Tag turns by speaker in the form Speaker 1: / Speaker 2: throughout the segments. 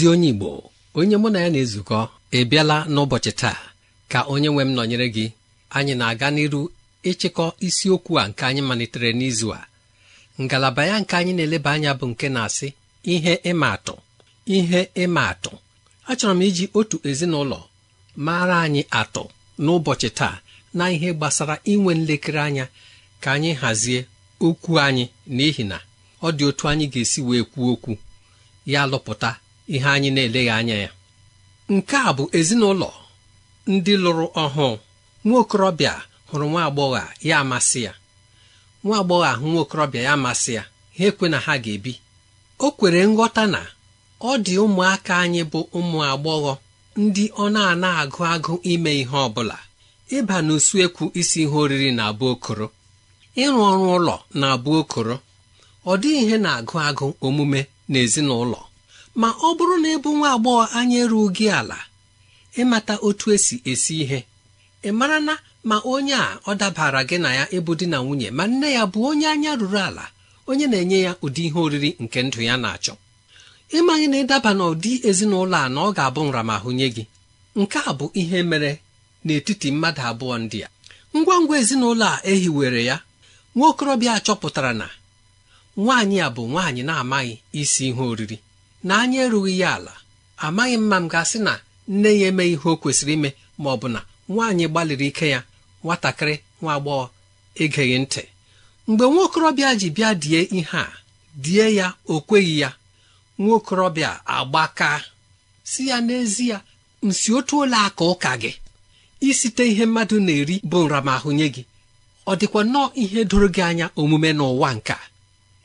Speaker 1: ezi onye Igbo onye mụ na ya na-ezukọ ị n'ụbọchị taa ka onye nwe m nọnyere gị anyị na-aga n'iru ịchịkọ isiokwu a nke anyị malitere n'izu a ngalaba ya nke anyị na-eleba anya bụ nke na-asị ihe ịma atụ ihe ịma atụ achọrọ m iji otu ezinụlọ mara anyị atụ n'ụbọchị taa na ihe gbasara inwe nlekere anya ka anyị hazie okwu anyị n'ihi na ọ dị otu anyị ga-esi wee kwuo okwu ya lụpụta ihe anyị na-eleghị anya ya nke a bụ ezinụlọ ndị lụrụ ọhụụ nwa okorobịa hụrụ nwa agbọghọ ya amasị ya nwa agbọghọ ahụ nwa okorobịa ya amasị ya ha ekwe na ha ga-ebi o kwere nghọta na ọ dị ụmụaka anyị bụ ụmụ agbọghọ ndị ọ na-ana agụ agụ ime ihe ọ bụla ịba n'usuekwu isi ihe oriri na-abụ okoro ịrụ ọrụ ụlọ na-abụ okoro ọ dịghị ihe na-agụ agụ omume n'ezinụlọ ma ọ bụrụ na ịbụ nwa agbọghọ anya eruo gị ala ịmata otu esi esi ihe ị mara na ma onye a ọ dabara gị na ya ịbụ di na nwunye ma nne ya bụ onye anya ruru ala onye na-enye ya ụdị ihe oriri nke ndụ ya na-achọ ịmaghị na ịdaba n'ụdị ezinụlọ a na ọ ga-abụ nramahụ nye gị nke a bụ ihe mere n'etiti mmadụ abụọ ndị a ngwa ngwa ezinụlọ a ehiwere ya nwa okorobịa chọpụtara na nwaanyị a bụ nwaanyị na-amaghị isi ihe oriri na anyị erughị ya ala amaghị m m ga-asị na nne ya emeghị ihe o kwesịrị ime ma ọ bụ na nwaanyị gbalịrị ike ya nwatakịrị nwa agbọghọ egeghị ntị mgbe nwaokorobịa ji bịa die ihe a die ya o kweghị ya nwaokorobịa okorobịa agbaka si ya n'ezie nsi otu ole aka ụka gị isite ihe mmadụ na-eri bụ nramahụ nye gị ọ dịkwa nnọọ ihe doro gị anya omume n'ụwa nka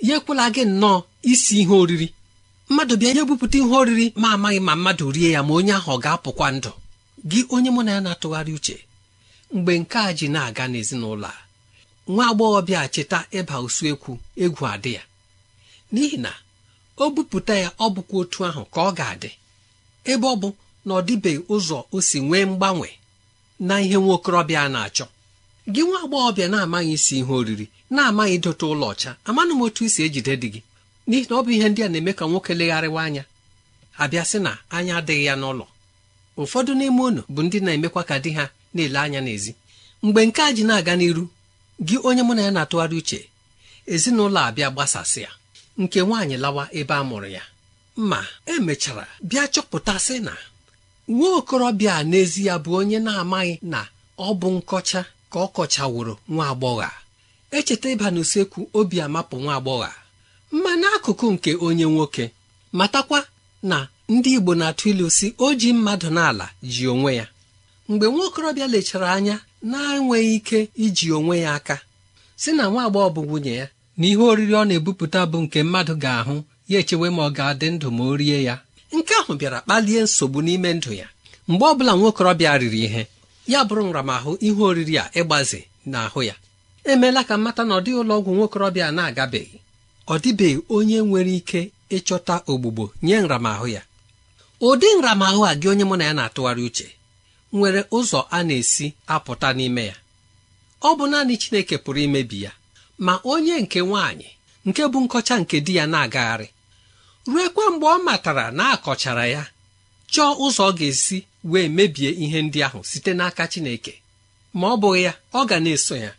Speaker 1: ya ekwela gị nnọọ isi ihe oriri mmadụ bịa nye bupụta ihe oriri ma amaghị ma mmadụ rie ya ma onye ahụ ọ ga-apụkwa ndụ gị onye mụ na ya na-atụgharị uche mgbe nke a ji na-aga n'ezinụlọ a nwa agbọghọbịa cheta ịba usuekwu egwu adị ya n'ihi na o bupụta ya ọ bụkwa otu ahụ ka ọ ga-adị ebe ọ bụ na ọ dịbeghị ụzọ o si nwee mgbanwe na ihe nwa okorobịa na-achọ gị nwa agbọghọbịa na-amaghị isi ihe oriri na-amaghị idote ụlọ ọcha amanụ m otu isi ejide dị gị n'ihi na ọ bụ ihe ndị a na-eme ka nwoke legharịwa anya abịa sị na anya adịghị ya n'ụlọ ụfọdụ n'ime unu bụ ndị na-emekwa ka di ha na-ele anya n'ezi mgbe nke a ji na-aga n'iru gị onye mụ na ya na-atụgharị uche ezinụlọ abịa gbasasịa nke nwaanyị lawa ebe a mụrụ ya ma emechara bịa chọpụtasị na nwa okorobịa a n'ezi ya bụ onye na-amaghị na ọ bụ nkọcha ka ọ kọchaworo nwa agbọghọ echeta ịba n'usekwu obi amapụ nwa agbọghọ Mmanụ n'akụkụ nke onye nwoke matakwa na ndị Igbo na-atụ ilu si o ji mmadụ n'ala ji onwe ya mgbe nwaokorobịa lechara anya na-enweghị ike iji onwe ya aka si na nwa agbọghọ bụ nwunye ya na ihe oriri ọ na-ebupụta bụ nke mmadụ ga-ahụ ya echewe ma ọ ga-adị ndụ ma o rie ya nke ahụ bịara kpalie nsogbu n'ime ndụ ya mgbe ọ bụla nwaokorobịa riri ihe ya bụrụ nramahụ ihe oriri a ịgbaze n'ahụ ya emeela ka mmata na ọ dịghị ụlọ ọgwụ nwaokorobịa na-agabeghị ọ dịbeghị onye nwere ike ịchọta ogbugbo nye nramahụ ya ụdị nramahụ a gị onye mụ na ya na-atụgharị uche nwere ụzọ a na-esi apụta n'ime ya ọ bụ naanị Chineke pụrụ imebi ya ma onye nke nwaanyị nke bụ nkọcha nke di ya na-agagharị ruekwa mgbe ọ matara na akọchara ya chọọ ụzọ ọ ga-esi wee mebie ihe ndị ahụ site n'aka Chineke ma ọ bụghị ya ọ ga na-eso ya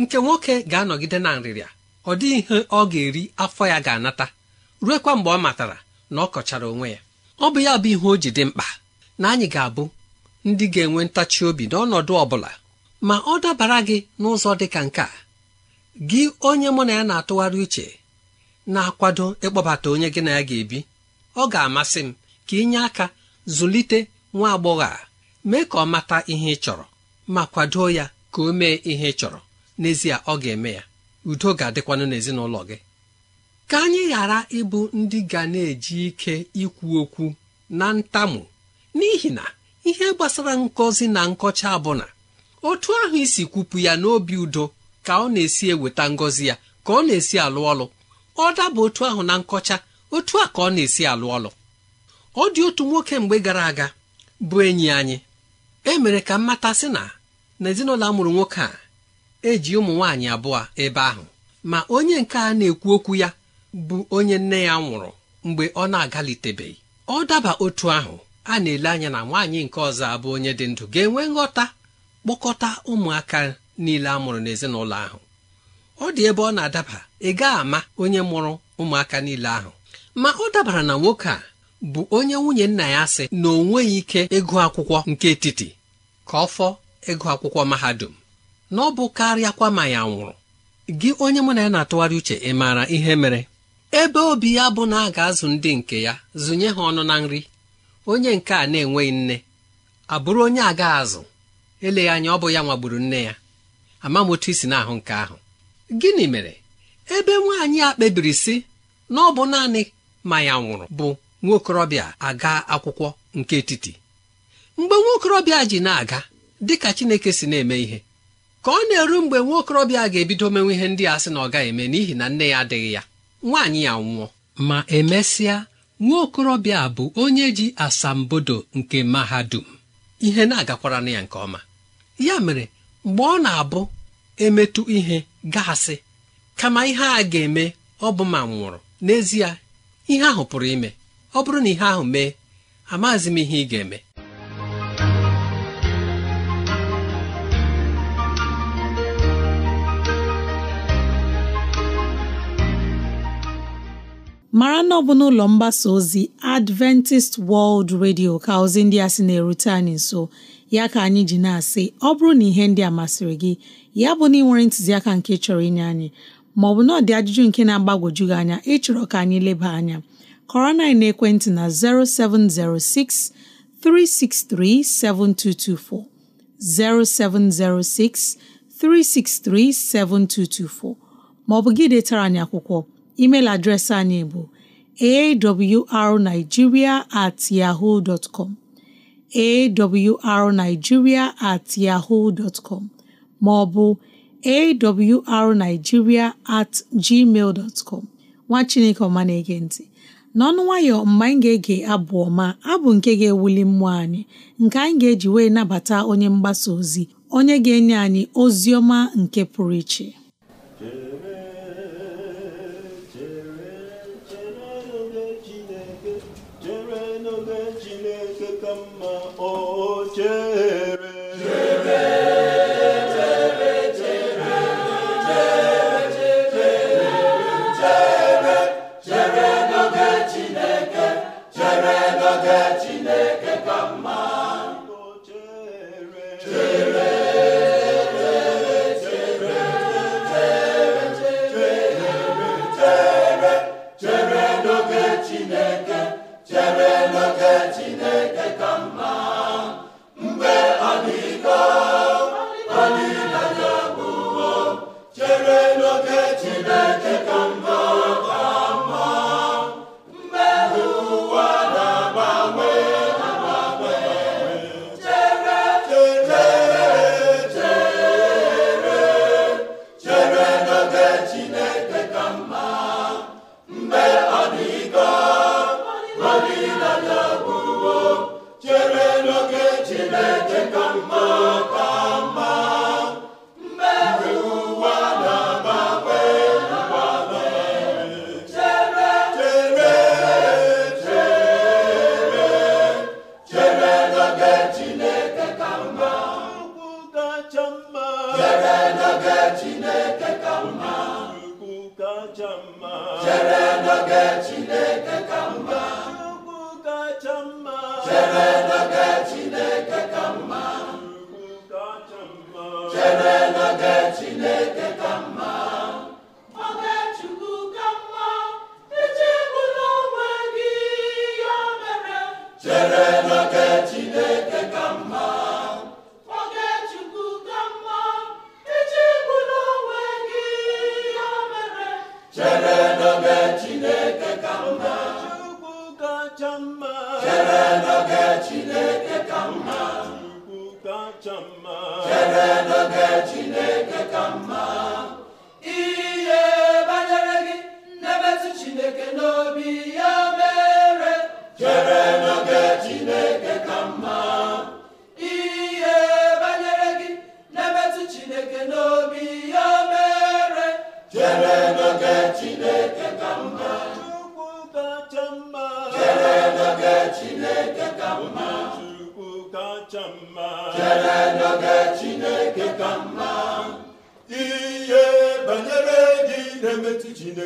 Speaker 1: nke nwoke ga-anọgide na nrịrịa ọ dịghị ihe ọ ga-eri afọ ya ga-anata ruekwa mgbe ọ matara na ọ kọchara onwe ya ọ bụ ya bụ ihe o ji dị mkpa na anyị ga-abụ ndị ga-enwe ntachi obi n'ọnọdụ ọ bụla ma ọ dabara gị n'ụzọ dị ka nke a gị onye mụ na ya na-atụgharị uche na-akwado ịkpọbata onye gị na ya ga-ebi ọ ga-amasị m ka ịnye aka zụlite nwa agbọghọ a mee ka ọ mata ihe ị chọrọ ma kwado ya ka o mee ihe ị chọrọ n'ezie ọ ga-eme ya udo ga-adịkwanụ n'ezinụlọ gị ka anyị ghara ịbụ ndị ga na-eji ike ikwu okwu na ntamu n'ihi na ihe gbasara ngọzi na nkọcha abụna otu ahụ isi kwupụ ya n'obi udo ka ọ na-esi eweta ngọzi ya ka ọ na-esi alụ ọlụ ọ daba otu ahụ na nkọcha otu a ka ọ na-esi alụ ọlụ ọ dị otu nwoke mgbe gara aga bụ enyi anyị e mere ka mmata sị na n'ezinụlọ a mụrụ nwoke a eji ụmụ nwaanyị abụọ ebe ahụ ma onye nke a na-ekwu okwu ya bụ onye nne ya nwụrụ mgbe ọ na-agalitebeghị ọ daba otu ahụ a na-ele anya na nwaanyị nke ọzọ abụ onye dị ndụ ga-enwe nghọta kpọkọta ụmụaka niile a mụrụ n'ezinụlọ ahụ ọ dị ebe ọ na-adaba ị ama onye mụrụ ụmụaka niile ahụ ma ọ dabara na nwoke a bụ onye nwunye nna ya sị na o nweghị ike ịgụ akwụkwọ nke etiti ka ọ fọ ịgụ akwụkwọ mahadum na ọ bụ karịakwa ma ya nwụrụ gị onye mụ na ya na-atụgharị uche ị maara ihe mere ebe obi ya bụ na a ga-azụ ndị nke ya zụnye ha ọnụ na nri onye nke a na-enweghị nne abụrụ onye agaghị azụ eleghị anya ọ bụ ya nwagburu nne ya ama m otu isi ahụ nke ahụ gịnị mere ebe nwaanyị a kpebiri sị na ọ bụ naanị ma ya nwụrụ bụ nwaokorobịa aga akwụkwọ nke etiti mgbe nwaokorobịa ji na-aga dịka Chineke si na-eme ihe ka ọ na-eru mgbe nwa okorobịa ga-ebido menwe ihe ndị a sị na ọ gaghị eme n'ihi na nne ya adịghị ya nwaanyị ya nwụọ ma emesịa nwa okorobịa bụ onye ji asambodo nke mahadum ihe na-agakwara na ya nke ọma ya mere mgbe ọ na-abụ emetụ ihe gasị kama ihe a ga-eme ọ bụ ma nwụrụ n'ezie ihe ahụ pụrụ ime ọ bụrụ na ihe ahụ mee amaghịzi m ihe ị ga-eme
Speaker 2: mara na ọ bụ n'ụlọ mgbasa ozi Adventist World Radio ka ozi ndị a sị na-erute anyị nso ya ka anyị ji na-asị ọ bụrụ na ihe ndị a masịrị gị ya bụ na ị nwere ntụziaka nke chọrọ inye anyị maọbụ na ọ ajụjụ nke na-agbagwoju gị anya ịchọrọ ka anyị leba anya kọrọ na ekwentị na 0706 363 7224 0706 363 7224 maọbụ gị detara anyị akwụkwọ email adreesị anyị bụ awrnigeria at yahoo dot com awrnigeria at yahoo dot com maọbụ awrnigeria at gmail dot com nwa chineke ọma na-ege n'ọnụ nwayọ mgbe anyị ga-ege abụ ọma abụ nke ga-ewuli mmụọ anyị nke anyị ga-eji wee nabata onye mgbasa ozi onye ga-enye anyị ozi ọma nke pụrụ iche
Speaker 3: ocie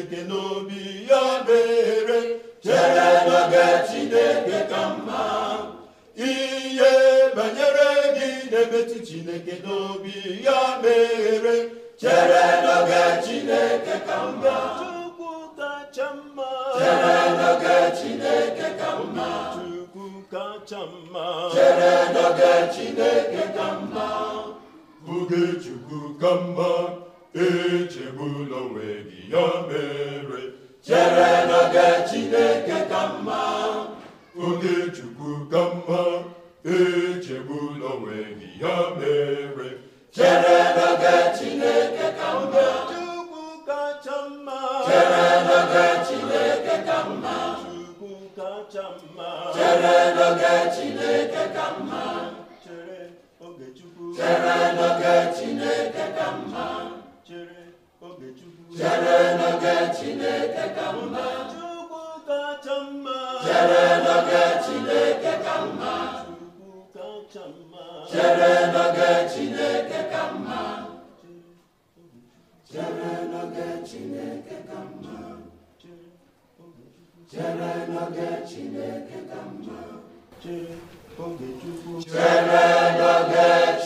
Speaker 3: chineke n'obi ya mere chere n'oge chineke ka mma ihe banyere gị na-emetụ chineke n'obi ya mere chere n'oge chineke ka mma chukwu kacha mma chere n'oge chineke ka mma chukwu kacha mma chere n'oge chineke ka mma oge chukwu ka mma echegbula onwe gị ya mere chere n'oge Chineke ka mma oge Chukwu ka mma echegbula onwe gị ya mere
Speaker 4: chere n'oge Chineke ka mma Chukwu
Speaker 3: kacha mma chere n'oge Chineke ka mma Chukwu kacha
Speaker 2: mma chere n'oge Chineke ka mma
Speaker 3: chere oge Chukwu chere n'oge Chineke ka mma chere n'oge Chineke ka mma Chukwu Chineke ka mma Chukwu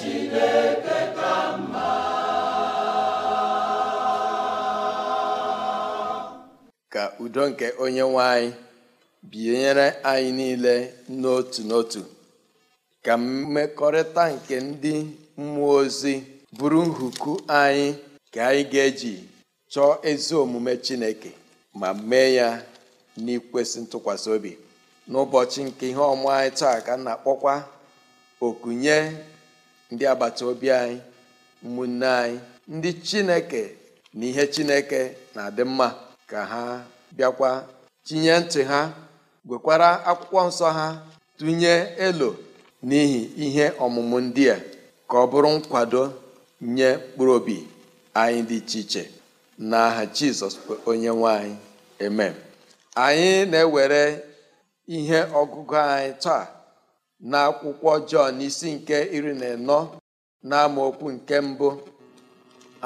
Speaker 3: n'oge Chineke
Speaker 4: ka mma
Speaker 5: udo nke onye nwe anyị binyere anyị niile n'otu n'otu ka mmekọrịta nke ndị mmụọ ozi bụrụ nhuku anyị ka anyị ga-eji chọọ ezi omume Chineke ma mee ya n'ikwesị ntụkwasị obi n'ụbọchị nke ihe ọmụ anyị taa ka na-akpọkwa okunye ndị agbata obi anyị ụmụnne anyị ndị Chineke na ihe Chineke na-adị mma ka ha bịakwa tinye ntị ha gwekwara akwụkwọ nsọ ha tụnye elo n'ihi ihe ọmụmụ ndị a ka ọ bụrụ nkwado nye mkpụrụ obi anyị dị iche iche n'aha Jizọs onye nwanyị anyị amen anyị na-ewere ihe ọgụgụ anyị taa na akwụkwọ Jọn isi nke iri na anọ na nke mbụ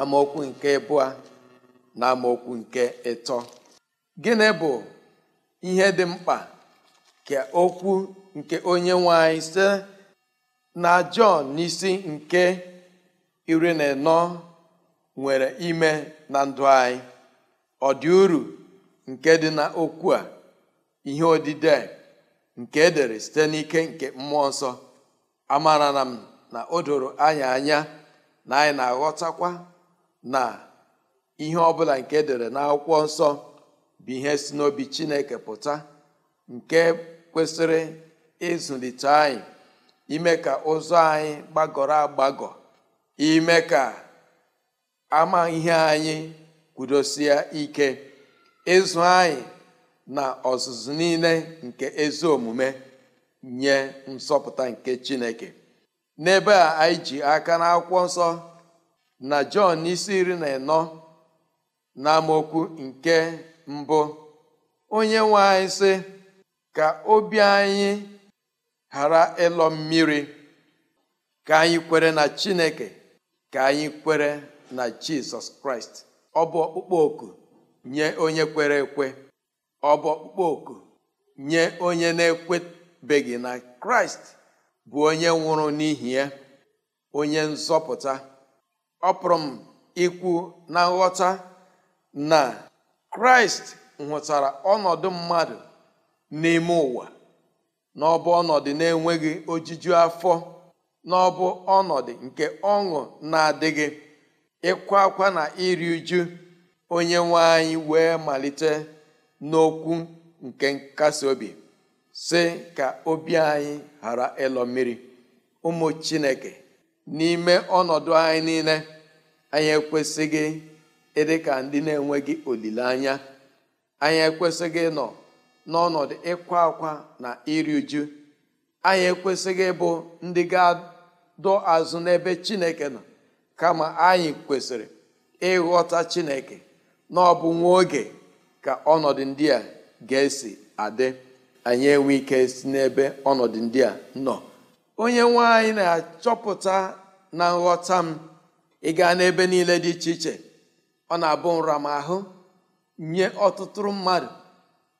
Speaker 5: amaokwu nke abụọ na amaokwu nke ịtọ gịnị bụ ihe dị mkpa ka okwu nke onye nwe anyị site na Jọn n'isi nke iri na nọ nwere ime na ndụ anyị ọ dị uru nke dị na okwu a ihe odide nke edere site n'ike nke mmụọ nsọ amara na m na o doro anya anya na anyị na-aghọtakwa na ihe ọbụla nke edere akwụkwọ nsọ bụ ihe si n'obi chineke pụta nke kwesịrị ịzụlite anyị ime ka ụzọ anyị gbagọrọ agbagọ ime ka ama ihe anyị kwudosie ike ịzụ anyị na ọzụzụ niile nke ezi omume nye nsọpụta nke chineke n'ebe a anyị ji aka na akwụkwọ nsọ na jọn isi iri na ịnọ n'amaokwu nke mbụ onye nwe anyị sị ka obi anyị ghara ịlọ mmiri ka anyị kwere na Chineke ka anyị kwere na Jizọs Kraịst ọ bụ ọkpụkpọ oku nye onye kwere ekwe ọ bụ ọkpụkpọ oku nye onye na-ekwebeghị na Kraịst bụ onye nwụrụ n'ihi ya onye nzọpụta ọ m ikwu na nghọta na kraịst nwetara ọnọdụ mmadụ n'ime ụwa n'ọbụ ọnọdụ na-enweghị ojuju afọ n'ọbụ ọnọdụ nke ọṅụ na-adịghị ịkwa akwa na iri uju onye nwe anyị wee malite n'okwu nke nkasi obi si ka obi anyị ghara ịlọ mmiri ụmụ chineke n'ime ọnọdụ anyị niile anyị ekwesịghị ịdị e ka ndị na-enweghị olileanya anyị ekwesịghị ịnọ n'ọnọdụ ịkwa akwa na iri uju anyị ekwesịghị ịbụ ndị ga-adọ azụ n'ebe chineke nọ kama anyị kwesịrị ịghọta chineke na ọ bụ nwa oge ka ọnọdụ ndị a ga-esi adị anyị enwe ike si n'ebe ọnọdụ ndị a nọ onye nwaanyị na-achọpụta na nghọta m ịga n'ebe niile dị iche iche ọ na-abụ nramahụ nye ọtụtụ mmadụ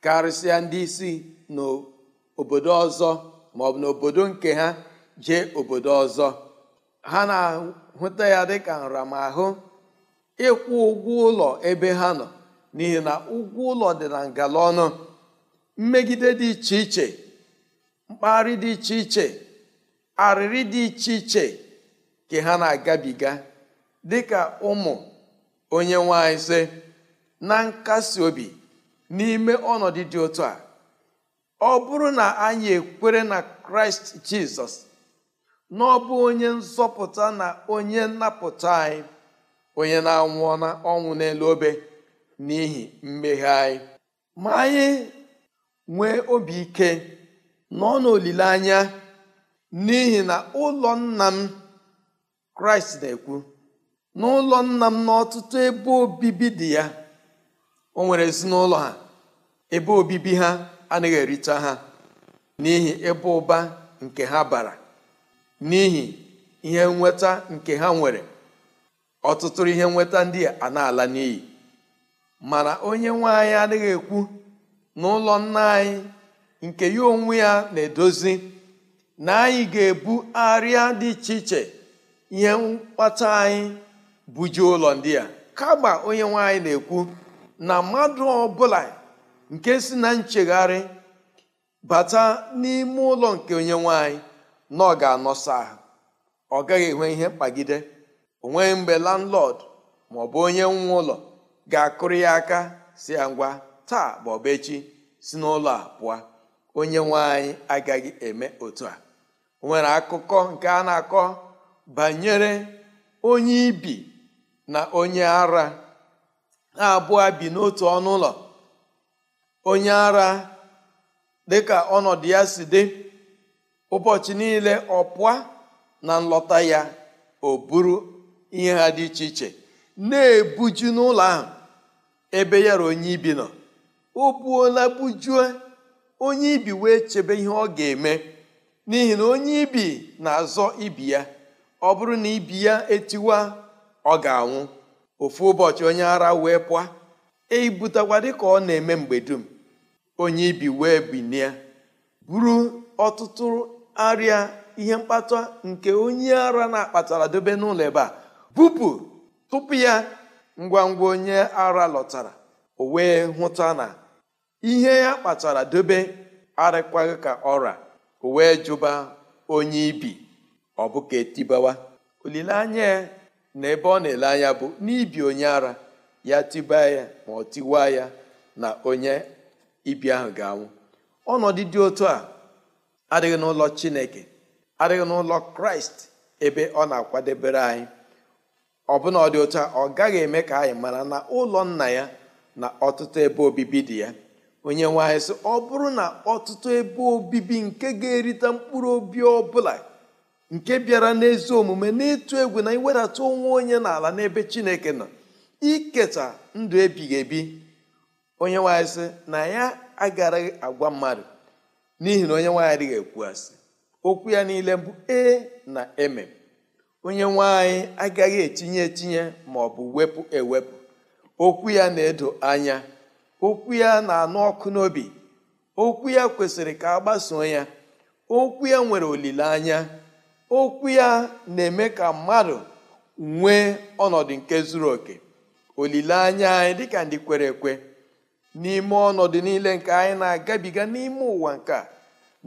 Speaker 5: karịsịa ndị isi n'obodo ọzọ bụ n'obodo nke ha jee obodo ọzọ ha na-ahụta ya dịka nramahụ ịkwụ ụgwọ ụlọ ebe ha nọ n'ihi na ụgwọ ụlọ dị na ngala ọnụ mmegide dị iche iche mkpagharị dị iche iche arịrị dị iche iche ka ha na-agabiga dịka ụmụ onye nwe anyị sị na nkasi obi n'ime ọnọdụ dị otu a ọ bụrụ na anyị ekwere na kraịst jizọs na ọ bụ onye nzọpụta na onye nnapụta anyị onye na-anwụ ọnwụ n'elu obe n'ihi mmehie anyị ma anyị nwee obi ike nọ n'olileanya n'ihi na ụlọ nna m kraịst na-ekwu n'ụlọ nna m n'ọtụtụ ebe obibi dị ya o nwere ezinụlọ ha ebe obibi ha anaghị ericha ha n'ihi ebe ụba nke ha bara n'ihi ihe nweta nke ha nwere ọtụtụ ihe nweta ndị a na-ala n'iyi mana onye nwe anyị adịghị ekwu n'ụlọ nna anyị nke ya onwe ya na-edozi na anyị ga-ebu arịa dị iche iche ihe mkpata anyị bujuo ụlọ ndị a kama onye nwanyị na-ekwu na mmadụ ọbụla nke si na nchegharị bata n'ime ụlọ nke onye nwanyị na ọ ga-anọsa ahụ ọ gaghị enwe ihe mkpagide onwe mgbe landlord ma ọ bụ onye nwe ụlọ ga-akụrụ ya aka si ya ngwa taa bụ echi si n'ụlọ a pụọ onye nwanyị agaghị eme otu a o nwere akụkọ nke a na-akọ banyere onye ibi na onye ara ha abụọ bi n'otu ọnụ ụlọ onye ara dịka ọnọdụ ya si dị ụbọchị niile ọpụa na nlọta ya o buru ihe ha dị iche iche na-ebuju n'ụlọ ahụ ebe ya ra onye ibi nọ o buola bujue onye ibi wee chebe ihe ọ ga-eme n'ihi na onye ibi na-azọ ibi ya ọ bụrụ na ibi ya etiwa ọ ga-anwụ ofu ụbọchị onye ara wee pụọ eibutakwa dịka ọ na-eme mgbe dum onye ibi wee binie buru ọtụtụ arịa ihe mkpata nke onye ara na-akpatara dobe n'ụlọ ebe a bupụ tupu ya ngwa ngwa onye ara lọtara o wee hụta na ihe ya kpatara dobe arịkwaghị ka ọra o wee jụba onye ibi ọ bụ ka etibawa olileanya na ebe ọ na-ele anya bụ n'ibi onye ara ya tibaa ya ma ọ tiwa ya na onye ibi ahụ ga-anwụ ọnọdụ dị otu a adịghị n'ụlọ chineke adịghị n'ụlọ kraịst ebe ọ na-akwadebere anyị ọ ọbụna ọ dị otu a ọ gaghị eme ka anyị mara na ụlọ nna ya na ọtụtụ ebe obibi dị ya onye nwe anyị sị ọ bụrụ na ọtụtụ ebe obibi nke ga-erite mkpụrụ obi ọ bụla nke bịara n'ezi omume n'ịtụ egwu na iwedata onwe onye n'ala n'ebe chineke nọ iketa ndụ ebighị ebi onye nwanyị sị na ya agaraghị agwa mmadụ n'ihi na onye nwanyị adịghị ekwu asị okwu ya niile bụ e na eme onye nwanyị agaghị etinye etinye ma ọ bụ wepụ ewepụ okwu ya na-edo anya okwu ya na-anụ ọkụ n'obi okwu ya kwesịrị ka a gbasoo ya okwu ya nwere olileanya okwu ya na-eme ka mmadụ nwee ọnọdụ nke zuru oke olileanya anyị dịka ndị kwere ekwe n'ime ọnọdụ niile nke anyị na-agabiga n'ime ụwa nke a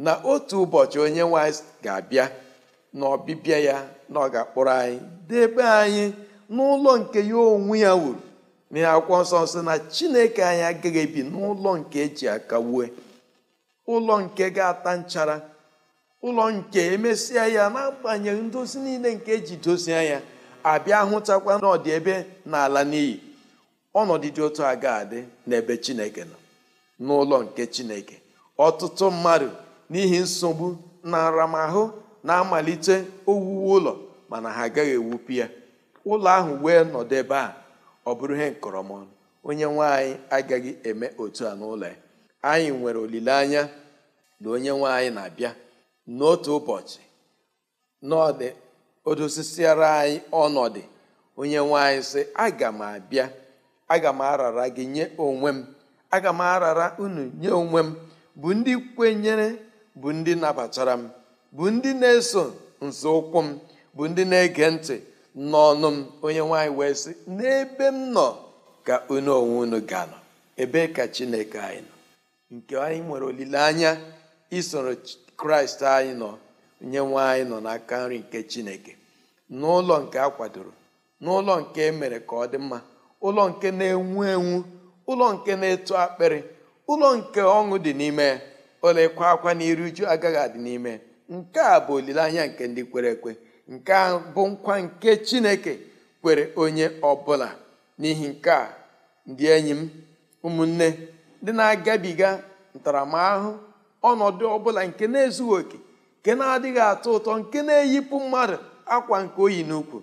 Speaker 5: na otu ụbọchị onye nwanyị ga-abịa na ọbịbịa ya na ọ ga-akpọrọ anyị debe anyị n'ụlọ nke ya onwe ya wuru na akwụkwọ nsọ nsọ na chineke anyị agaghị ebi n'ụlọ nke eji aka wue ụlọ nke ga-ata nchara ụlọ nke emesịa ya n'agbanyeghị ndozi niile nke eji dozie ya abịa hụtakwa n'ọdị ebe na ala n'iyi ọnọdụ dị otu a ga-adị n'ebe chineke nọ n'ụlọ nke chineke ọtụtụ mmadụ n'ihi nsogbu na aramahụ na-amalite owuwe ụlọ mana ha agaghị ewupu ya ụlọ ahụ wee nọdụ ebe a ọ bụrụ ihe nkọrọmọnụ onye nwanyị agaghị eme otu a n'ụlọ ya anyị nwere olileanya na onye nwanyị anyị na-abịa n'otu ụbọchị n'ọdị odosisiara anyị ọnọdụ onye nwanyị sị aga m abịa aga m arara gị nye onwe m aga m arara unu nye onwe m bụ ndị kwenyere bụ ndị nabatara m bụ ndị na-eso nzọụkwụ m bụ ndị na-ege ntị n'ọnụ m onye nwanyị wee sị n'ebe m nọ ka unu onwe unu ga-anọ ebe ka chineke anyị nọ nke anyị nwere olileanya isoro kraịst anyị nọ nye nwa anyị nọ n'aka nri nke chineke n'ụlọ nke a kwadoro n'ụlọ nke emere ka ọ dị mma ụlọ nke na-enwu enwu ụlọ nke na-eto akpịrị ụlọ nke ọṅụ dị n'ime ya ụlọ ịkwa akwa na iru uju agaghị adị n'ime nke a bụ olileanya nke ndị kwere ekwe nke a bụ nkwa nke chineke kwere onye ọbụla n'ihi nke a ndị enyi m ụmụnne ndị na-agabiga ntaramahụhụ ọnọdụ ọbụla nke na-ezughị oke nke na-adịghị atọ ụtọ nke na-eyipụ mmadụ akwa nke oyi n'ukwu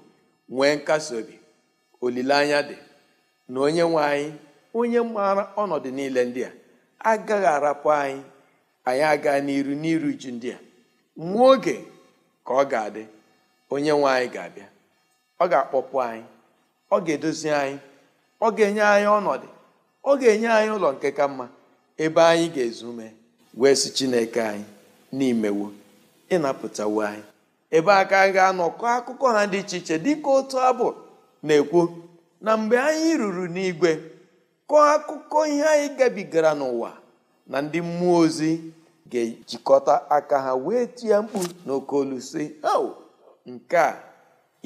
Speaker 5: nwee nkasi obi olileanya dị na onye nwe anyị onye maara ọnọdụ niile ndị a agaghị arapụ anyị anyị aga n'iru n'iru ju ndị a nwa oge ka ọ ga-adị onye nwe anyị ga-abịa ọ ga-akpọpụ anyị ọ ga-edozi anyị ọ ga-enye anyị ọnọdụ ọ ga-enye anyị ụlọ nke ka mma ebe anyị ga-ezu ume wee si chineke anyị n'imewo ịnapụtawo anyị ebe aka a ga-anọkọ akụkọ ha dị iche iche dịka otu abụ na-ekwu na mgbe anyị ruru n'igwe kọọ akụkọ ihe anyị gabigara n'ụwa na ndị mmụọ ozi ga-ejikọta aka ha wee tie mkpu n'oke olu si ao nke a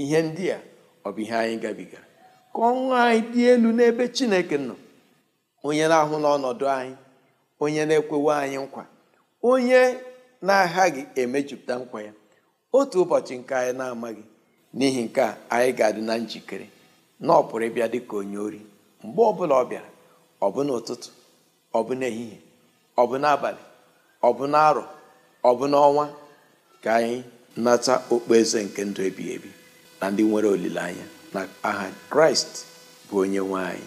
Speaker 5: ihe ndị a ọ bụ ihe anyị gabigara ka ọnwa anyị dị elu n'ebe chineke nọ onye na-ahụ n'ọnọdụ anyị onye na-ekwewe anyị nkwa onye na-aghaghị emejupụta nkwa ya otu ụbọchị nke anyị na-amaghị n'ihi nke a anyị ga-adị na njikere na ọ pụrụ ịbịa dị ka onye ori mgbe ọbụla ọ bịara ọ bụ n'ụtụtụ ọ bụ n'ehihie ọ bụ n'abalị ọ bụ n'arọ ọ bụ n'ọnwa ka anyị nata okpueze nke ndụ ebighị ebi na ndị nwere olileanya na aha kraịst bụ onye nwe anyị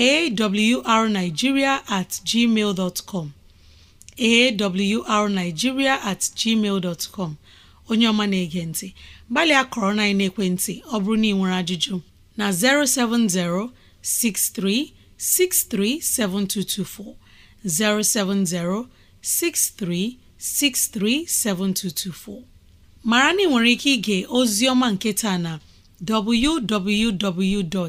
Speaker 2: A w r Naijiria at gmail dot com A at gmail dot com Onyeọma na-ege nti, gbalịa korona na-ekwentị, ọ bụrụ na ị nwere ajụjụ, na-07063 070 637224. 07063 7224 Mara na ị nwere ike ịga ozi ọma nke taa na www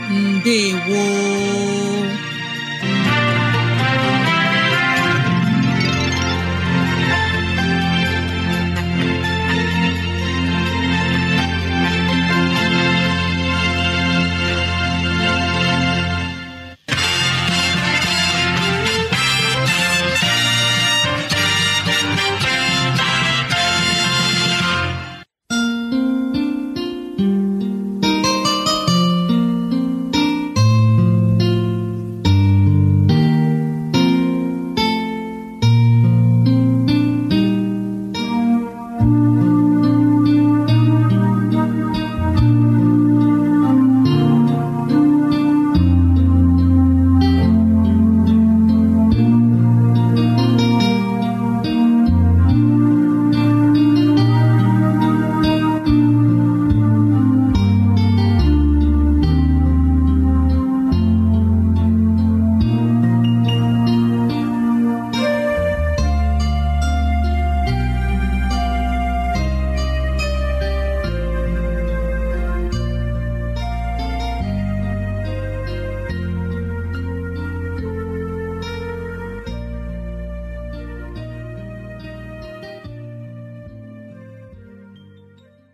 Speaker 2: ndewo